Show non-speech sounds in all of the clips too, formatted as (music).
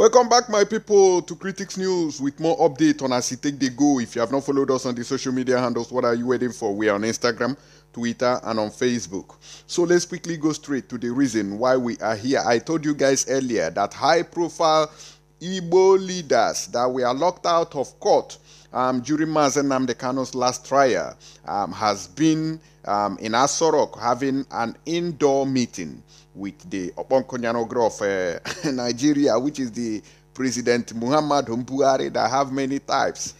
Welcome back, my people, to Critics News with more update on as it take the go. If you have not followed us on the social media handles, what are you waiting for? We are on Instagram, Twitter, and on Facebook. So let's quickly go straight to the reason why we are here. I told you guys earlier that high-profile Igbo leaders that were locked out of court um, during Mazen Namdekano's last trial um, has been um, in Asorok having an indoor meeting with the Oponkonyanogre of uh, (laughs) Nigeria, which is the President Muhammad Mbuhari that have many types.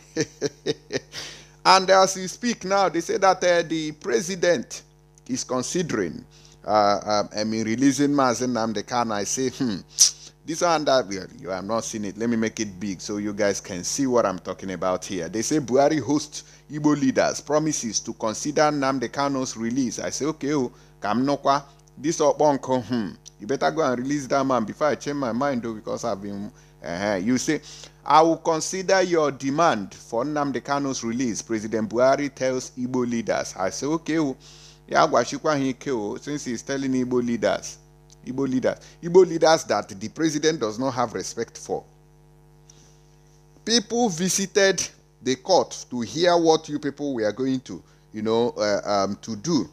(laughs) and as we speak now, they say that uh, the president is considering uh, um, I mean, releasing Mazen Namdekan. I say, hmm this one that you have not seen it. Let me make it big so you guys can see what I'm talking about here. They say Buhari hosts Igbo leaders, promises to consider Namde Kano's release. I say, okay, oh, Kamnokwa, this up uncle, hmm. You better go and release that man before I change my mind though, because I've been uh -huh. You say, I will consider your demand for Nnamdi Kanu's release, President Buhari tells Igbo leaders. I say, okay, oh, oh, since he's telling Igbo leaders, Igbo leaders. Igbo leaders that the president does not have respect for. People visited the court to hear what you people were going to, you know, uh, um, to do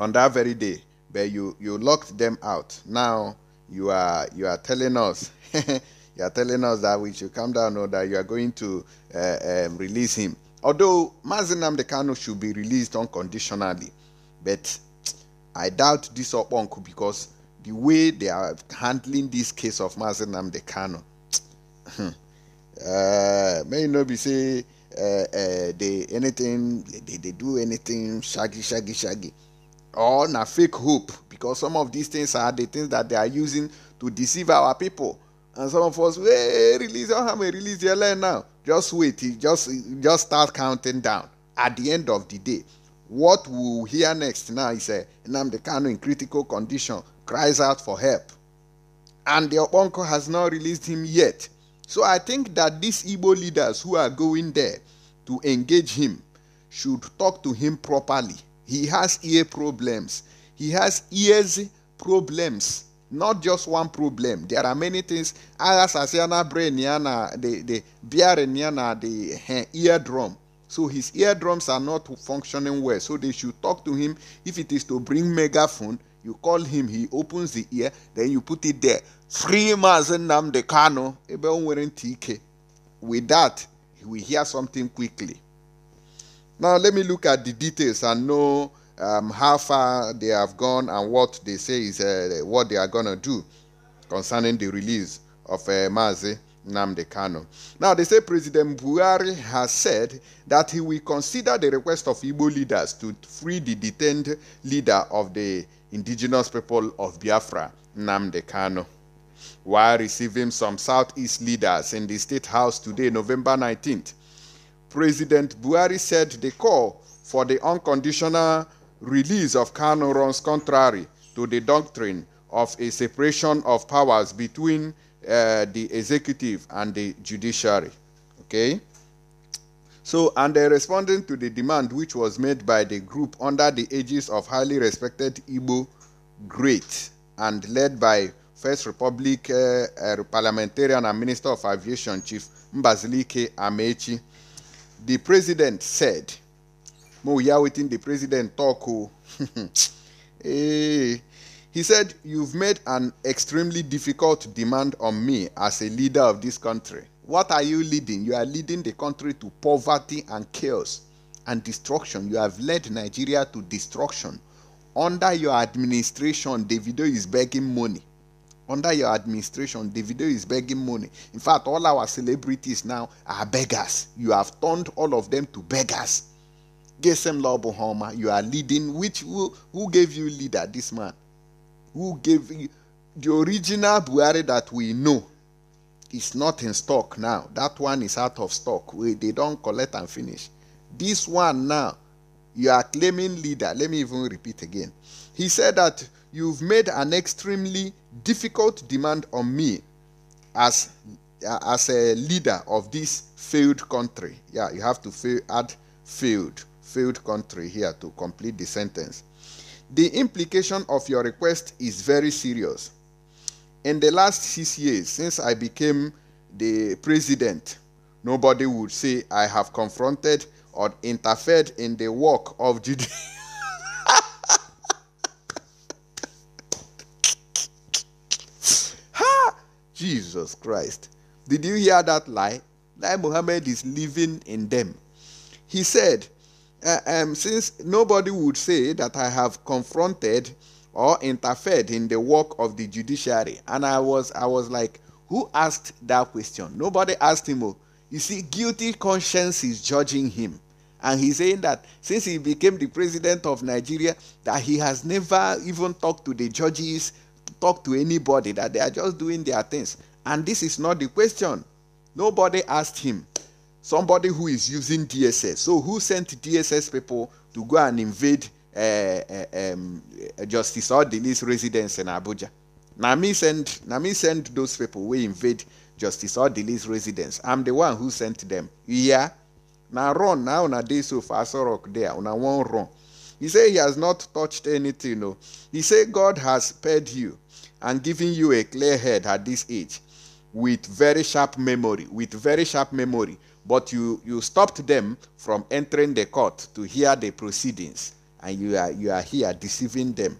on that very day, but you you locked them out. Now you are you are telling us. (laughs) you are telling us that we should come down or that you are going to uh, um, release him. Although Mazinam Dekano should be released unconditionally, but I doubt this Okponku because the way they are handling this case of Mazen Namde Kano, (tsk) uh, may not be say uh, uh, they anything they, they do anything shaggy shaggy shaggy or na fake hope because some of these things are the things that they are using to deceive our people and some of us hey release your hammer release your land now just wait just just start counting down at the end of the day what we'll hear next now is uh, Kanu in critical condition cries out for help. And the Oponko has not released him yet. So I think that these Igbo leaders who are going there to engage him should talk to him properly. He has ear problems. He has ears problems. Not just one problem. There are many things. Agas asiana brain yana the the bear yana the eh, eardrum. So his eardrums are not functioning well. So they should talk to him. If it is to bring megaphone, you call him, he opens the ear, then you put it there. Free Mazen Namde Kano, TK. With that, we hear something quickly. Now let me look at the details and know um, how far they have gone and what they say is uh, what they are going to do concerning the release of uh, Mazi. Namde Kano. Now, they say President Buhari has said that he will consider the request of Igbo leaders to free the detained leader of the indigenous people of Biafra, Namde Kano. While receiving some Southeast leaders in the State House today, November 19th, President Buhari said the call for the unconditional release of Kano runs contrary to the doctrine of a separation of powers between uh, the executive and the judiciary. Okay? So, and they responding to the demand which was made by the group under the aegis of highly respected Igbo great and led by First Republic uh, uh, parliamentarian and Minister of Aviation Chief Mbazilike Amechi, the president said, Mo, we the president talk. Oh. (laughs) hey, he said, You've made an extremely difficult demand on me as a leader of this country. What are you leading? You are leading the country to poverty and chaos and destruction. You have led Nigeria to destruction. Under your administration, Davido is begging money. Under your administration, Davido is begging money. In fact, all our celebrities now are beggars. You have turned all of them to beggars. Gesem Lobohoma, you are leading. Which who, who gave you leader? This man who gave the original Buhari that we know is not in stock now. That one is out of stock. We, they don't collect and finish. This one now, you are claiming leader. Let me even repeat again. He said that you've made an extremely difficult demand on me as as a leader of this failed country. Yeah, you have to fail, add failed, failed country here to complete the sentence. The implication of your request is very serious. In the last six years, since I became the president, nobody would say I have confronted or interfered in the work of Judea. (laughs) ha! Jesus Christ. Did you hear that lie? That Muhammad is living in them. He said, uh, um, since nobody would say that I have confronted or interfered in the work of the judiciary, and I was I was like, who asked that question? Nobody asked him. Oh, you see, guilty conscience is judging him, and he's saying that since he became the president of Nigeria, that he has never even talked to the judges, talked to anybody, that they are just doing their things, and this is not the question. Nobody asked him somebody who is using DSS. So who sent DSS people to go and invade uh, uh, um, Justice Odili's residence in Abuja? Nami sent Nami sent those people. We invade Justice Odili's residence. I'm the one who sent them. Yeah. Now run now na day so far so rock there. Una one run. He said he has not touched anything. No. He said God has spared you and given you a clear head at this age with very sharp memory. With very sharp memory but you you stopped them from entering the court to hear the proceedings and you are you are here deceiving them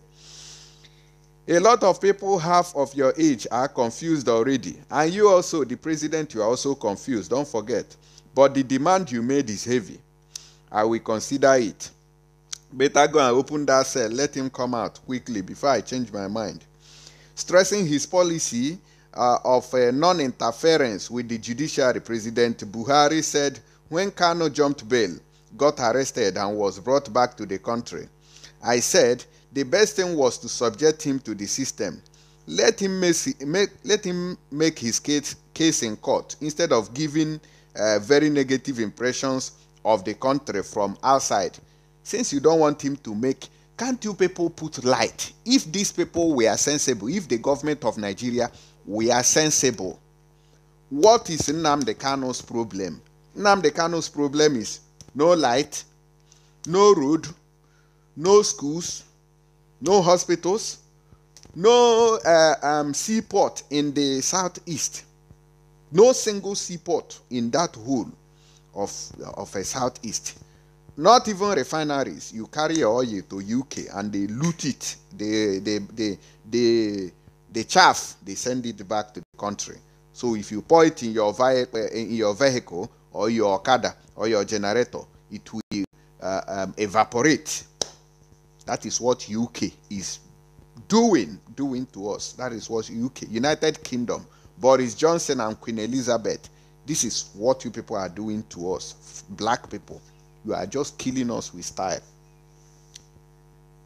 a lot of people half of your age are confused already and you also the president you are also confused don't forget but the demand you made is heavy i will consider it better go and open that cell let him come out quickly before i change my mind stressing his policy uh, of uh, non-interference with the judiciary, President Buhari said when Kano jumped bail, got arrested and was brought back to the country. I said the best thing was to subject him to the system. Let him make, let him make his case, case in court instead of giving uh, very negative impressions of the country from outside. Since you don't want him to make, can't you people put light? If these people were sensible, if the government of Nigeria we are sensible. What is Nnamdi Kano's problem? Nnamdi Kano's problem is no light, no road, no schools, no hospitals, no uh, um, seaport in the southeast, no single seaport in that whole of of a southeast. Not even refineries. You carry your oil to UK and they loot it. They they they they the chaff they send it back to the country so if you pour it in your, eh, in your vehicle or your okada or your generator it will uh, um, evaporate that is what uk is doing doing to us that is what uk united kingdom boris johnson and queen elizabeth this is what you people are doing to us black people you are just killing us with style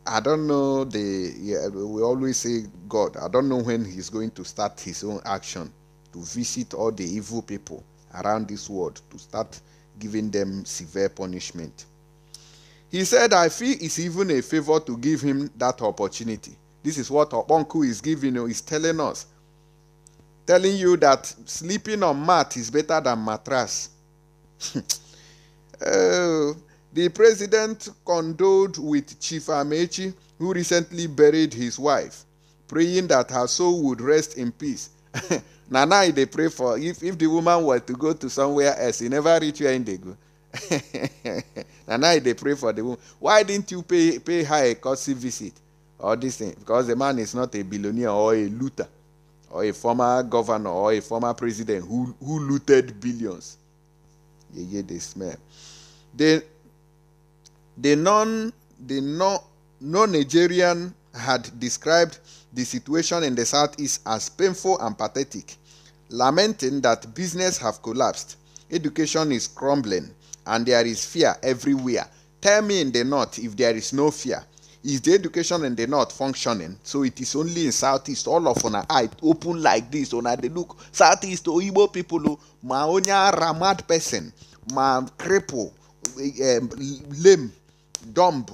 I don't know the yeah, we always say God. I don't know when he's going to start his own action to visit all the evil people around this world to start giving them severe punishment. He said, I feel it's even a favor to give him that opportunity. This is what Oponku is giving you, is telling us. Telling you that sleeping on mat is better than mattress. (laughs) uh, the president condoled with Chief Amechi, who recently buried his wife, praying that her soul would rest in peace. (laughs) Nana, they pray for if, if the woman were to go to somewhere else, he never reach where they go. (laughs) Nana, they pray for the woman. Why didn't you pay, pay her a courtesy visit? All this thing. Because the man is not a billionaire or a looter or a former governor or a former president who, who looted billions. Yeah, hear they smell. They the non the no, no Nigerian had described the situation in the southeast as painful and pathetic, lamenting that business have collapsed, education is crumbling, and there is fear everywhere. Tell me in the north if there is no fear. Is the education in the north functioning? So it is only in southeast. All of una eye open like this. Una they look southeast Oyibo oh, people, oh, ma onya ramad person, ma cripple, um, lame dumb,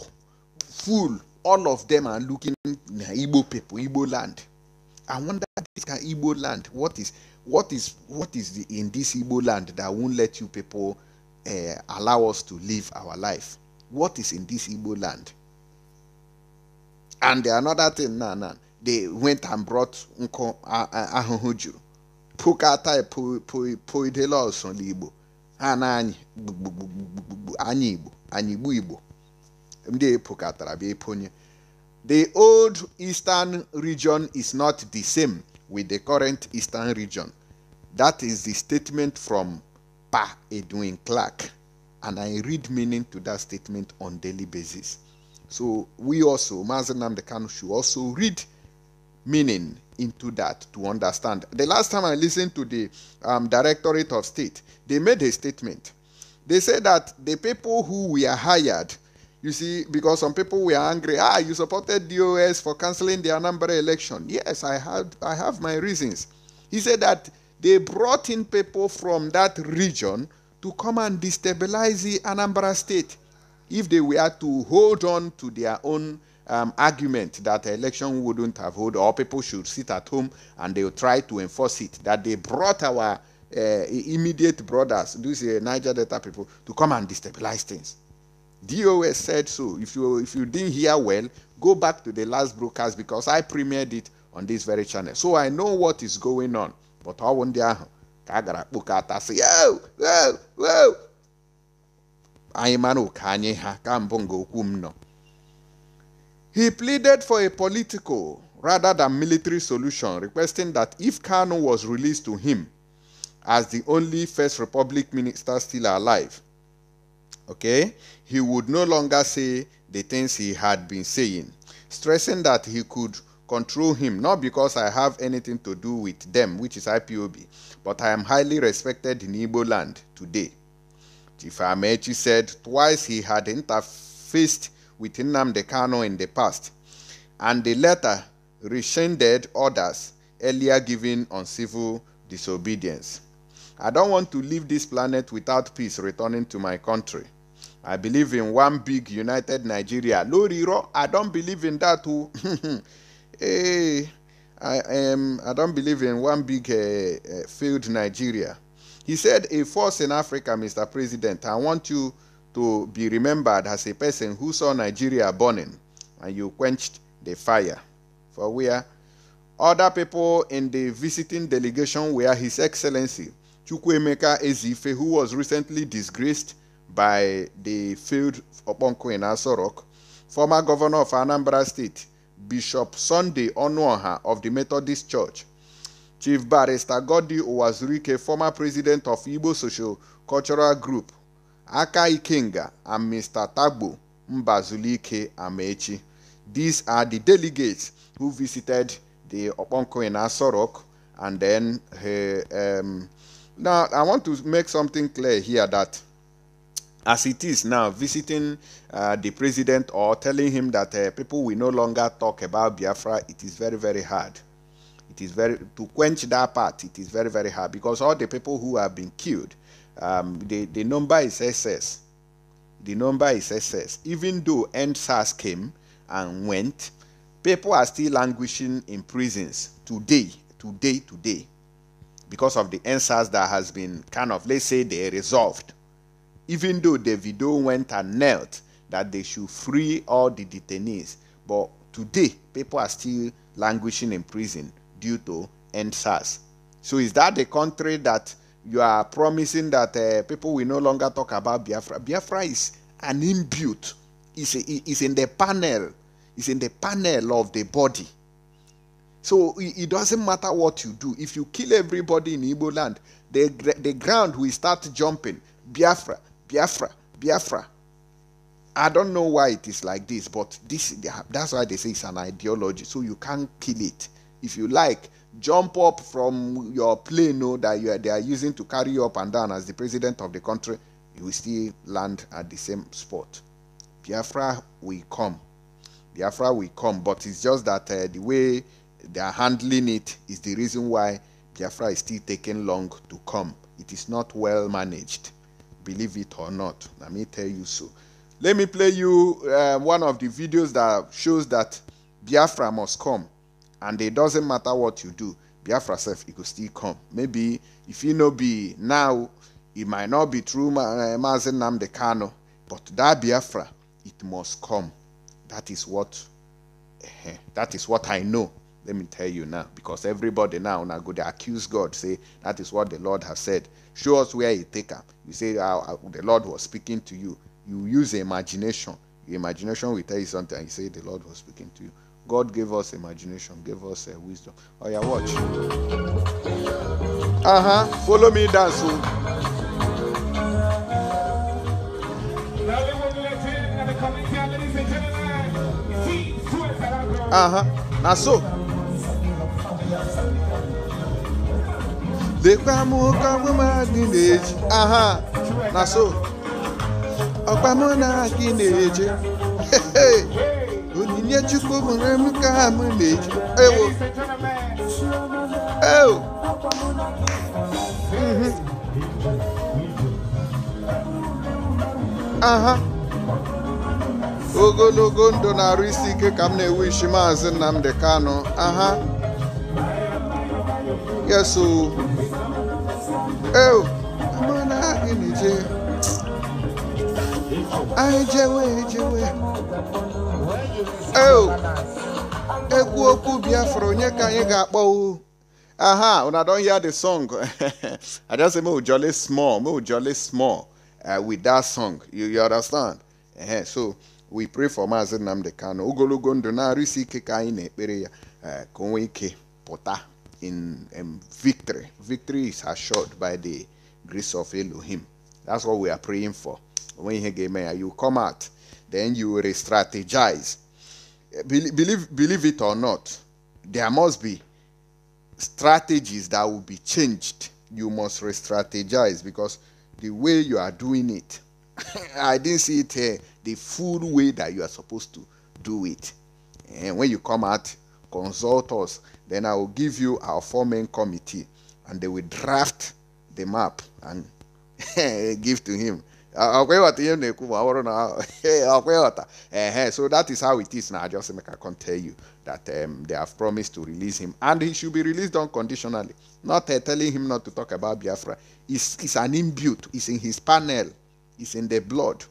fool, all of them are looking Igbo people, Igbo land. I wonder this can Igbo land. What is what is what is the, in this Igbo land that won't let you people uh, allow us to live our life? What is in this Igbo land? And the another thing, nah, nah, they went and brought Unko Ahuhuju. Pukata Poidelos on Igbo. Ana anyị anyị Igbo, anibu Igbo Igbo bịa the old eastern region is not the same with the current eastern region that is the statement from pa edwin clark and i read meaning to that statement on daily basis so we also mazi the kanu should also read meaning into that to understand. The last time I listened to the um, Directorate of State, they made a statement. They said that the people who were hired you see, because some people were angry. Ah, you supported DOS for cancelling the Anambra election. Yes, I had I have my reasons. He said that they brought in people from that region to come and destabilize the Anambra state if they were to hold on to their own um, argument that the election wouldn't have hold or people should sit at home and they'll try to enforce it that they brought our uh, immediate brothers these uh, niger delta people to come and destabilize things DOS said so. If you if you didn't hear well, go back to the last broadcast because I premiered it on this very channel. So I know what is going on. But how one the ka a gara kpokọta sị yo yo yo anyị mara ha ka He pleaded for a political rather than military solution, requesting that if Kano was released to him as the only First Republic minister still alive, Okay? He would no longer say the things he had been saying, stressing that he could control him, not because I have anything to do with them, which is IPOB, but I am highly respected in Igbo land today. Chief Amechi said twice he had interfaced with Nnamdi in the past, and the latter rescinded orders earlier given on civil disobedience. I don't want to leave this planet without peace returning to my country. I believe in one big united Nigeria. Lori Ro, I don't believe in that too. hey, (laughs) eh, I am. I don't believe in one big uh, eh, uh, eh, failed Nigeria. He said, "A force in Africa, Mr. President. I want you to be remembered as a person who saw Nigeria burning, and you quenched the fire. For where other people in the visiting delegation were His Excellency Chukwuemeka Ezife, who was recently disgraced." by the field Okonkwo in Aso former governor of Anambra State, Bishop Sunday Onuoha of the Methodist Church, Chief Barrister Godi Owazurike, former president of Igbo Social Cultural Group, Aka Ikenga, and Mr. Tagbo Mbazulike Amechi. These are the delegates who visited the Okonkwo in Aso Rock and then he eh, um, now I want to make something clear here that as it is now, visiting uh, the president or telling him that uh, people will no longer talk about Biafra, it is very, very hard. It is very to quench that part. It is very, very hard because all the people who have been killed, um, the the number is excess. The number is excess. Even though NSAS came and went, people are still languishing in prisons today, today, today, because of the NSAS that has been kind of let's say they resolved even though Davido went and knelt that they should free all the detainees. But today, people are still languishing in prison due to NSAS. So is that the country that you are promising that uh, people will no longer talk about Biafra? Biafra is an inbuilt. It's, it's in the panel. It's in the panel of the body. So it doesn't matter what you do. If you kill everybody in Igbo land, the, the ground will start jumping. Biafra. Biafra, Biafra. I don't know why it is like this, but this that's why they say it's an ideology. So you can't kill it. If you like, jump up from your plane no, that you are, they are using to carry you up and down as the president of the country, you will still land at the same spot. Biafra will come. Biafra will come, but it's just that uh, the way they are handling it is the reason why Biafra is still taking long to come. It is not well managed believe it or not. Let me tell you so. Let me play you uh, one of the videos that shows that Biafra must come, and it doesn't matter what you do, Biafra self it could still come. Maybe if you know be now, it might not be true, uh, Mazen Namde Kano, but that Biafra, it must come. That is what, uh, that is what I know. Let me tell you now, because everybody now now go they accuse God, say that is what the Lord has said. Show us where He take up. You say oh, the Lord was speaking to you. You use imagination. Your imagination will tell you something. And you say the Lord was speaking to you. God gave us imagination, gave us uh, wisdom. Oh yeah, watch. Uh huh. Follow me, dance. Oh. Uh huh. Now so. lekwa m oke ọmụmadụ na-eji aha na so ọkpa mụ na gị na-eje onyinye chukwu mụrụ m ka m na-eji ewo ewo mhm. aha ogologo ndụ na-arụ isi ike ka m na-ewu ishi maazị Nnamdi Kanu aha yes o mana anyị na-eje anyị jewe ejewe ekwu okwu biafra onye ka anyị ga-akpọ o aha una don hear the song (laughs) i just say make we jolly small make we jolly small uh, with that song you, you understand uh -huh. so we pray for Maazị Nnamdi Kanu ogologo ndụ na-arụ isi ike ka anyị na-ekpere ya uh, ka o nwee ike pụta in um, victory. Victory is assured by the grace of Elohim. That's what we are praying for. When you hear you come out, then you re strategize. Eh, believe, believe, believe it or not, there must be strategies that will be changed. You must re strategize because the way you are doing it, (coughs) I didn't see it uh, the full way that you are supposed to do it. And eh, when you come out, consult us. Then I will give you our four main committee, and they will draft the map and (laughs) give to him. (laughs) so that is how it is now. I just make I can tell you that um, they have promised to release him, and he should be released unconditionally. Not uh, telling him not to talk about Biafra. It's, it's an imbued. It's in his panel. It's in the blood,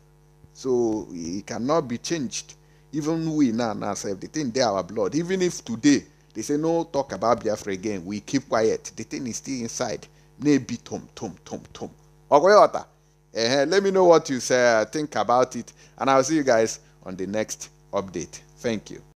so he cannot be changed. Even we now, now self, the thing they our blood. Even if today they say no talk about Biafra again, we keep quiet. The thing is still inside. Maybe tom tom tom tom. Okay, uh, let me know what you say, uh, think about it, and I'll see you guys on the next update. Thank you.